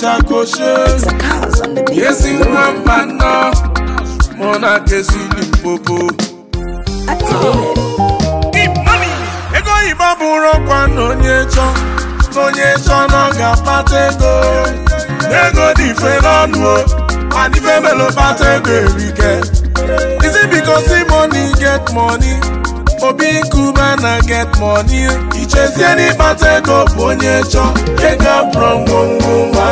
chakoche you nwa mmanụ kesi na money get money obi nkuba get money He chase any bụ onye chọ ego abụrụ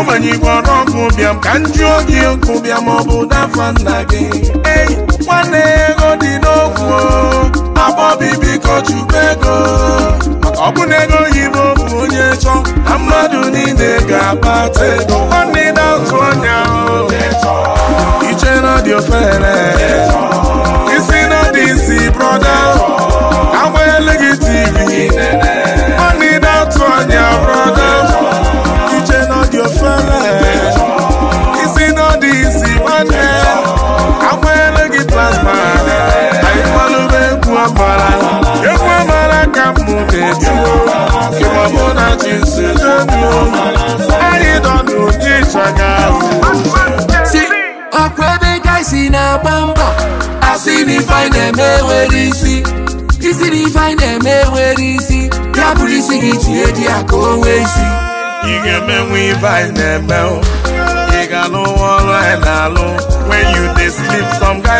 omenye igbo ọrụ ọgụ bịam ka m jụọ gị okwu bịa ma ọ bụ dafa nna gị ei nwanne ego dị n'okwu abọbi biko chukwu ego maka ọ bụ ego oyibo bụ onye chọ na mmadụ niile ga-akpata ego nwanne na otu ọnya iche na dị ofere isi na dị isi brọda etí o kí wọ́n mú náà ti sí lóbi o ẹni dọ̀dù ní ìṣẹ̀gà. sí ọ̀pọ̀ ebe gaisi na-agba mbọ asị na ifeanyị na-emewere isi isi na ifeanyị na-emewere isi ya bụrụ isi gị tinye di ya ka o nwee isi ị ga-emenwe ifeanyị na-eme ị ga n'ụwa ọrụ anyị na-alụ when you dey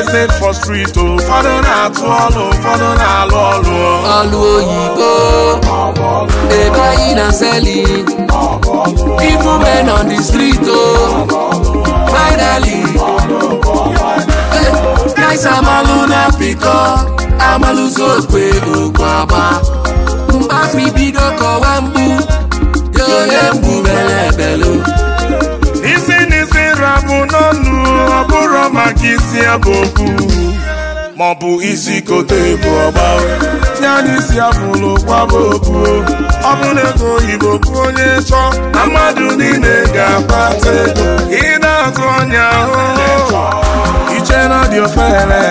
estate for street o ụfọdụ na-atụ ọlụ ụfọdụ na-alụ ọlụ ọlụ oyibo dey buying and selling even men on the street o finally guys amalu na pikọ amalụzi okwe okwe agba mgbafi bido kọwa mgbu yohe mgbu bụ maọbụ isi kote bụ ọgba tinye n'isi afụlụ kwaba okwu ọ bụ na ego oyibo bụ onye chọ na mmadụ niile ga-akpata ego ị na-atụ ọnya ahụhụ oh, oh. iche na dị ofere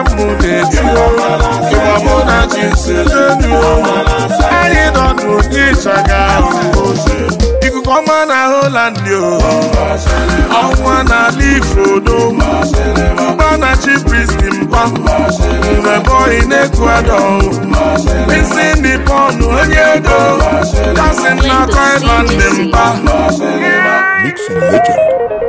n'etiti o Mix and legend.